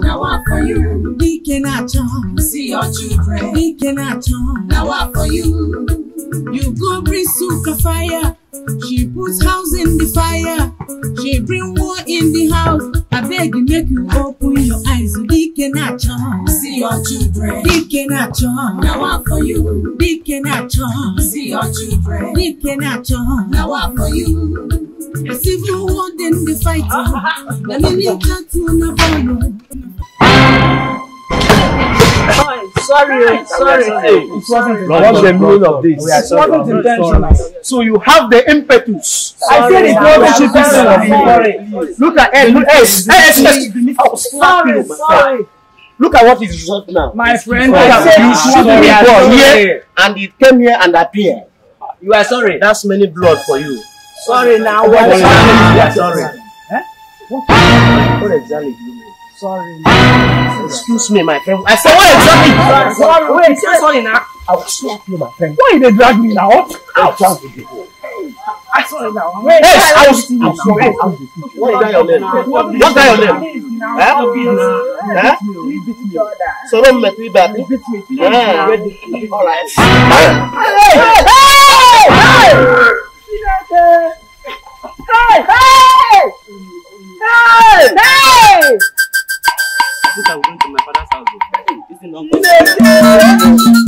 Now what for you? We cannot home. See your children. We cannot. home. Now what for you? You go bring suka fire. She puts house in the fire. She bring war in the house. I beg you, make you open your eyes. We cannot home. See your children. We cannot. home. Now what for you? We cannot home. See your children. We cannot. home. Now what for you? Cause if you want them fight you, let me need that to never you. Sorry, sorry, sorry. It wasn't the meaning of this? It wasn't intentional. So you have the impetus. Sorry, I said it wasn't intentional. Look at Ed. Look at Sorry, sorry. Look at what is result now. My friend, you ah, should be born here, and it came here and appeared. You are sorry. That's many blood for you. Sorry now. What? Sorry. Yeah, sorry. Eh? What? What exactly do Sorry. Excuse me, my friend. I said, what exactly? Sorry. Sorry. Wait, say sorry now. I will slap you, my friend. Why did they drag me now? Out. Out. Out. I saw it now. Wait, yes, I was. I saw it. What is that your name? What is that your name? Huh? Huh? So don't make me back. Beat All right kí ló Hey! Hey! Hey! Hey! I I will to my father's house. This is not good.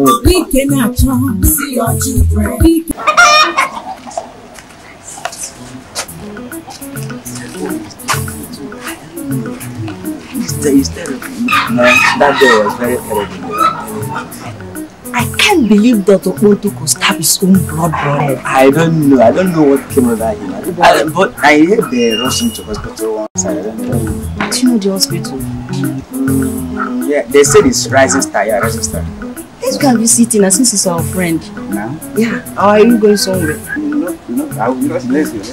Bike na see si ọjị bike. No, that girl was very terrible. I can't believe that Okoto could stab his own blood brother. I don't know. I don't know what came over him. I, but I heard they rushed him to hospital once. I don't know. Do you know the hospital? Mm, yeah, they said it's Rising Star. Yeah, Rising Star. Let's go and visit him since he's our friend. Now? Yeah. Or are you going somewhere? No, no, I will not bless you.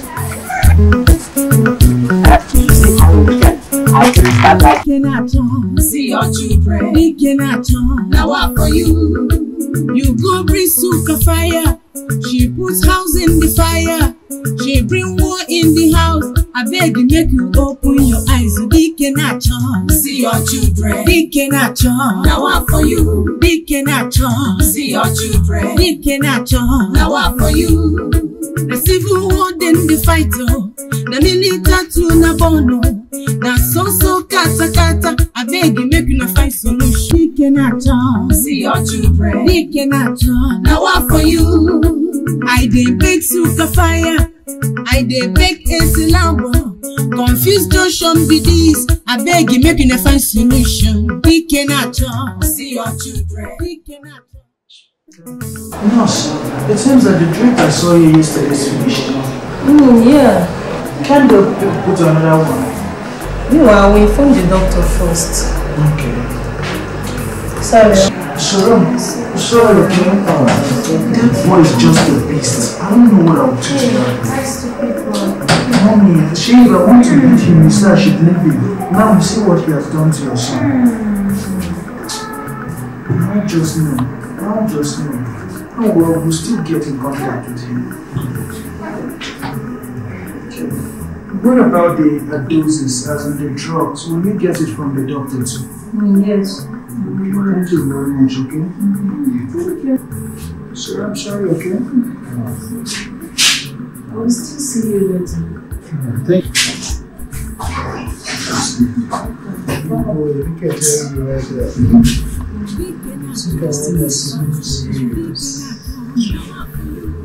See your children. Now what for you? You go bring suka fire. She puts house in the fire she bring war in the house I beg you, make you open your eyes Big na chọn. see your children. dike na chọn. Now one for you. Big na chọn. see your children. dike na chọn. na one for you. The civil war then the fight o. Oh na nearly tatu na bono na so so kata kata abeg make una find solution. Nike na turn. See your children. Nike na turn. Na wa for you. I dey beg suka fire. I dey beg AC lambo. Confused notion be this. Abeg make una find solution. Nike na turn. See your children. Nike na turn. Nurse, it seems that the drink I saw you yesterday is finished. Mm, yeah. Can't the put another one? Meanwhile, we inform the doctor first. Okay. Sorry. Sharon, sorry, okay? That boy is just a beast. I don't know what I'll do to Mommy, she, I want to meet him. He said I should leave him. Now you see what he has done to your son. Hmm. I just know. I just know. Oh well, we'll still get in contact with him. What about the doses, as in the drugs? Will you get it from the doctor too? Mm, yes. Okay, thank you very much, okay? Mm -hmm. Thank you. Sir, I'm sorry, okay? Mm -hmm. I will still see you later. thank you. Oh, you right there.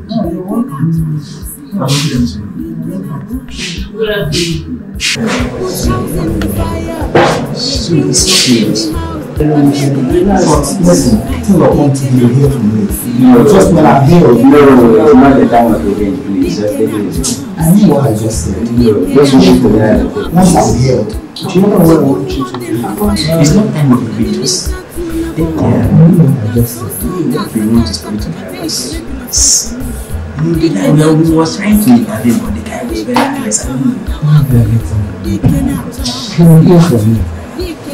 No, you're welcome. Sweet, sweet. Two of them to be here for me. No, just when I'm here. No, not the time of the game, please. I mean what I just said. No, just move to the other. Once I'm here, do you know what I want you to do? It's not time of the videos. They come. I just said. What we want is for you to help us. No, was trying to but the guy was very I don't know.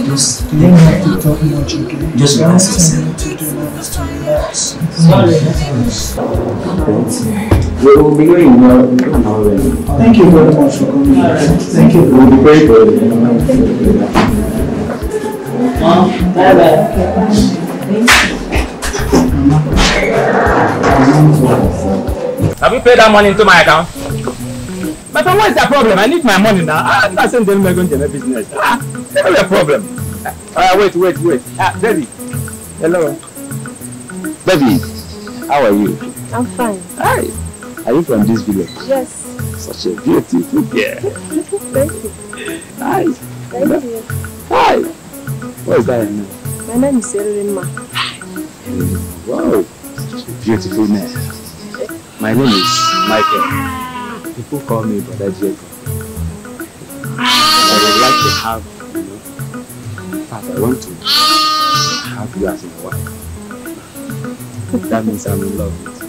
Just you don't have to talk much, Just yourself. To do to relax. Sorry. We will be going now. Thank you very much for coming. Thank you. We'll be very good. Mom, bye bye. Have you paid that money into my account? But what is the problem? I need my money now. I'm not saying not going to my business. Ah, that's not a problem. Ah, uh, wait, wait, wait. Ah, baby. Hello. Baby, how are you? I'm fine. Hi. Are you from this village? Yes. Such a beautiful girl. Thank you. Hi. Thank Hello. you. Hi. What is that your name? My name is Erin Wow, such a beautiful name. My name is Michael. People call me Brother Jacob. I would like to have, you know, in fact, I want to have you as my wife. That means I'm in love with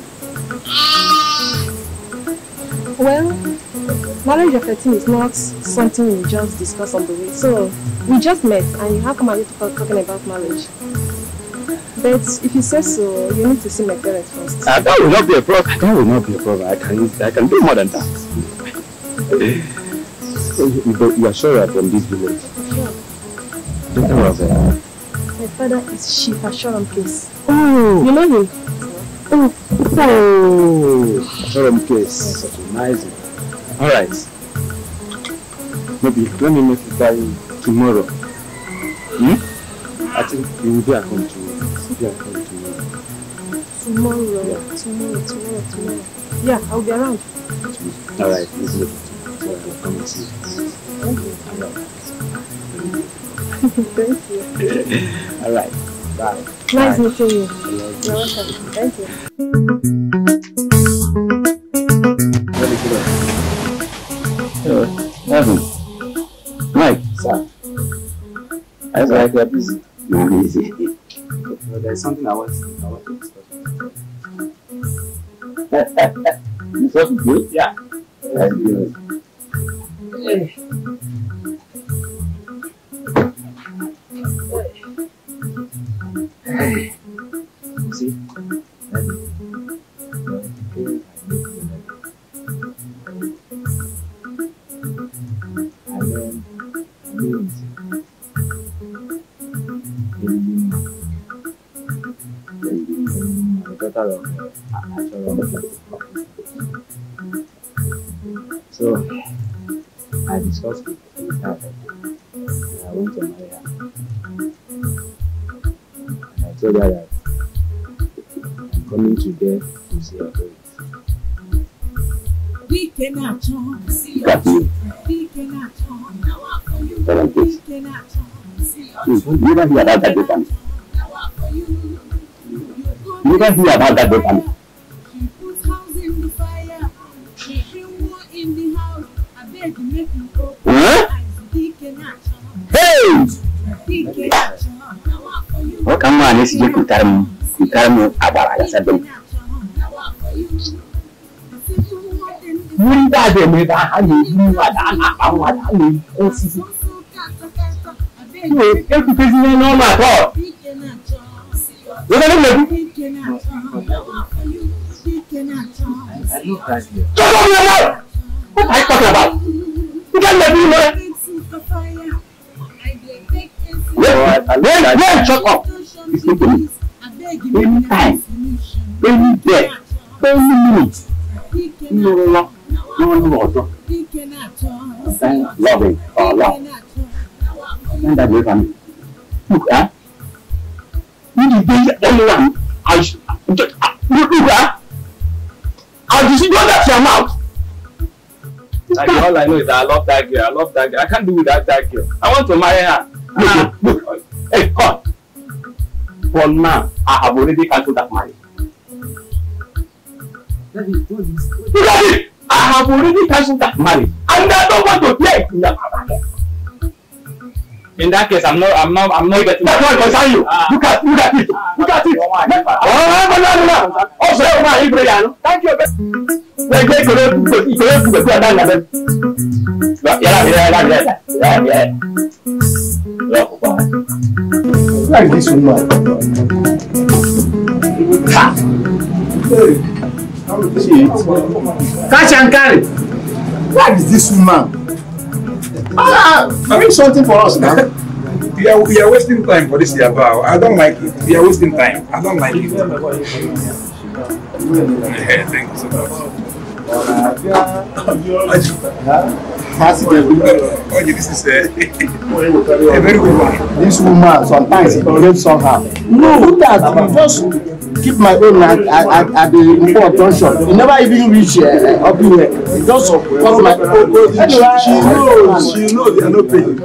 you. Well, marriage of 13 is not something we just discuss on the way. So, we just met and you have come and you talking about marriage. But if you say so, you need to see my parents first. Uh, that will not be a problem. That will not be a problem. I can, I can do more than that. Eh, but you, are sure you are from this village? Sure. Don't worry about eh? My father is Chief Ashoram Case. Oh! You know him? Oh! Oh! Ashoram Case. Such a nice one. Alright. Maybe let me make it by tomorrow. Hmm? I think you will be a home yeah, come tomorrow. Tomorrow, yeah. tomorrow, tomorrow, tomorrow. Yeah, I'll be around. All right, it's good. So I'll come and see you. Thank you. Thank you. All right. Bye. Nice Bye. meeting you. You're welcome. Thank you. Very Hello. Mike. Sir. I was like, you're busy. You're busy. Well, there's something I want to, you felt good? Yeah. That's good. Hey. Hey. See? And then, sọ̀rọ̀ sọ̀rọ̀ so I discussed with her and I went to marry her and I told her that I'm coming to there to see her parents. We cannot turn, see your We cannot turn, now I for you. We cannot turn, see You never hear that You don't hear about that locally. Huh? Hey! Wakan ma ne su je kutar mu, kutar mu a baraka sabbin. Wuri ba da mai ba hanyar yi wa da ana ɓanwa da hanyar yi ko sisi. Ne, ɗan kuka zina noma to. Wani ne ku? I love that girl. Just What are you talking about? You can't let me know. Wait, wait, wait, shut up. It's not for me. Any time, any day, any minute. No, no, no, no, no, no. Thank loving for love. Thank that way for me. Look, eh? Ah. You the only one your mouth. Like, all I know is that I love that girl. I love that girl. I can't do without that girl. I want to marry her. Look, look, ah. look. Hey, cut. For now, I have already cancelled that marriage. Daddy, do this. Look at it. I have already cancelled that marriage, and I don't want to play in that marriage. In that case, I'm not, I'm not, I'm not getting. That's not concern you. Ah. Look at, look at it. Ah, look at it. Ah. Oh, no, no, no. Ah. Oh, so oh, you Thank you gbẹgbẹ ìṣòro ìṣòro ìṣòro ìṣòro ọ̀dà ìlànà yàrá mi yàrá mi yàrá mi yàrá mi yàrá kópa. Like this woman. Ha! Catch and carry. is this woman. Ah, bring something for us now. we are, we are wasting time for this yaba. I don't like it. We are wasting time. I don't like it. yeah, thank you so much a very good one. This woman sometimes it behaves somehow. No, who does? You just keep my own at at, at the important shop. You never even reach uh, up here. Just come like anyway. Oh, oh, oh, she knows, she knows they are not paying.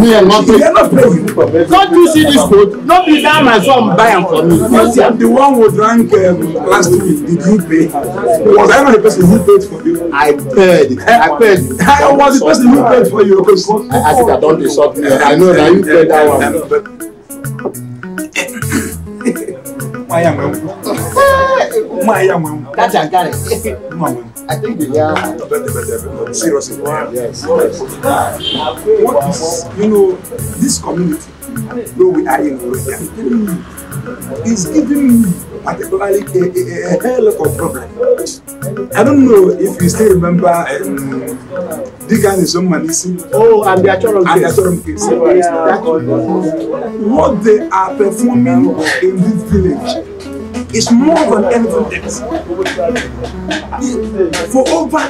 Me and not paying. They are not paying. Don't you see this code? Don't be down my son buy am for me. Yes, I'm the one who drank um, last week. Did you pay? Was I not the person who paid for you? I paid. I paid. I was the person who paid for you. I, I think I don't insult me. I know that you paid that one. Maya mwengu. That's a guy. Maya I think they yeah. are better, better, better. Seriously. Wow. Yes. yes. What is, you know, this community, though we are in Korea, is giving me particularly a, a, a hell of a problem. I don't know if you still remember um, Digan is on Manisi. Oh, and the Achorum case. And the Achorum yeah. What they are performing in this village is more than evidence. For over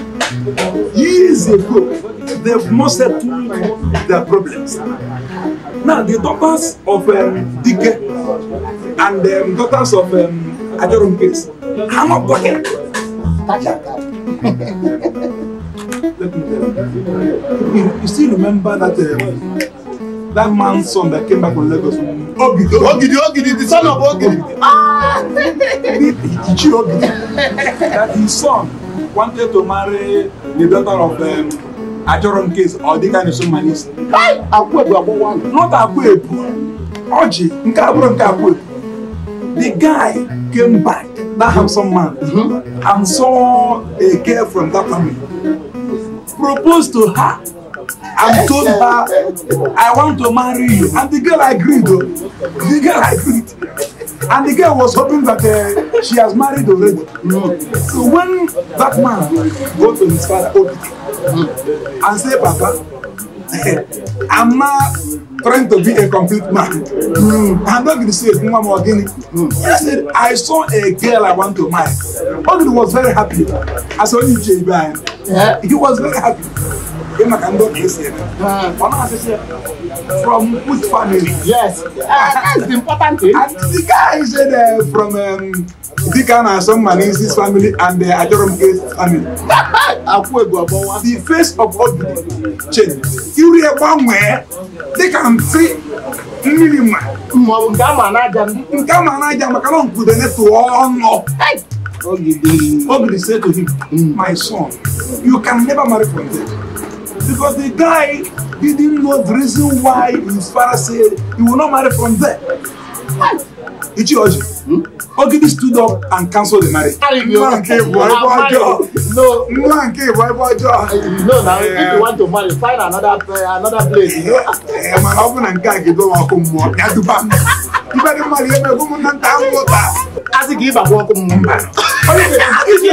years ago, they've not settled their problems. Now, the daughters of um, Dike and the um, daughters of um, Ajorum case are not talking. Let me tell you. You, you still remember that um, that man's son that came back from Lagos? Ogidi, Ogidi, Ogidi, the son of Ogidi. Ah! that his son wanted to marry the daughter of um, Ajoron Case or the kind of someone is. Not Akwebu, Oji, nke abụrụ nke Akwebu. The guy came back, that handsome man, mm-hmm. and saw a girl from that family. Proposed to her and told her, I want to marry you. And the girl agreed. The girl agreed. And the girl was hoping that uh, she has married already. Mm. So when that man go to his father, mm. and say, Papa, I'm not trying to be a complete man. Mm. I'm not going to say a woman again." guinea. He said, I saw a girl I want to marry. Obi was very happy. I saw you, J. Brian. Yeah. He was very happy dem na ka ndị ọbịa esi eme ọ na-asị sị from good family. yes ah, that's the important thing. and the guy said uh, from dịka um, na-asọ mma n'isi family and uh, achọrọ m ka esi family. akwụ egwu ọbọwa. the face of all the change iru ya gbanwee dịka nsị mmiri ma. ma ọ bụ nke ama n'aja m. nke ama n'aja maka na nkwudo netụọ ọnụ. Ogidi say to him, hmm. my son, you can never marry from there because the guy he didn't know the reason why his father said he will not marry from there. Ichioji, hmm? Ogidi stood up and cancelled the marriage. Nwa nke bụ ebe ọjọọ. No. Nwa nke bụ ebe ọjọọ. No na if you want to marry find another uh, another place. Ee mana ọ bụ na nke a ga-edowe ọkụ mmụọ ya duba Ibe dị mmadụ ebe ụmụnna nta ahụ ụta asị gị ịgbakwa ọkụ m mba asị gị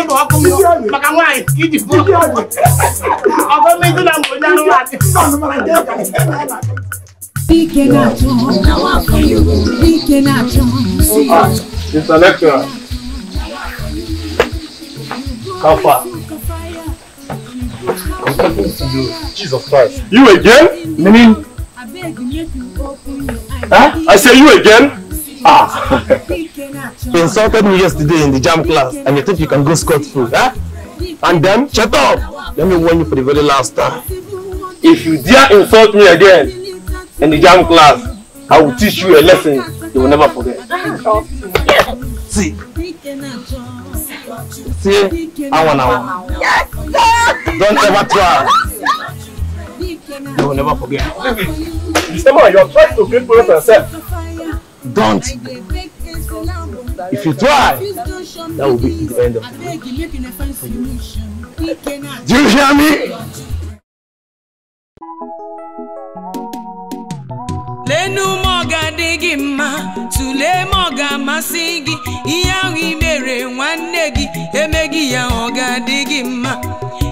ịgba ọkụ m maka nwaanyị iji bụ ọgọmezi na mgbe onye anụmanụ Jesus Christ. You again? Meaning? Huh? I say you again? Ah! you insulted me yesterday in the jam class and you think you can go scot-free, huh? Eh? And then, shut up! Let me warn you for the very last time. If you dare insult me again in the jam class, I will teach you a lesson you will never forget. See? See? I want hour. Yes! Don't ever try. You will never forget. Mr. Man, you are trying to create problems yourself. Don't. If you try, that will be the end of you. Do you hear me? lenu mọga adịghị mma tulee mọga amasị gị ihe ahụ ị nwanne gị emeghị ya ọ ga-adị gị mma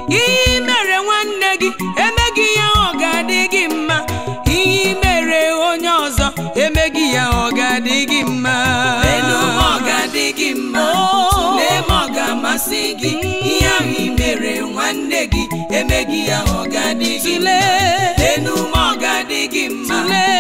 ihe mere ya ọ ga-adị gị mma elu ga-adị gị mma tụlee oh. ma ọ ga-amasị gị mm. ihe ahụ ị mere nwanne gị emeghị ya ọ ga-adị gị mma elu ọ ga-adị gị mma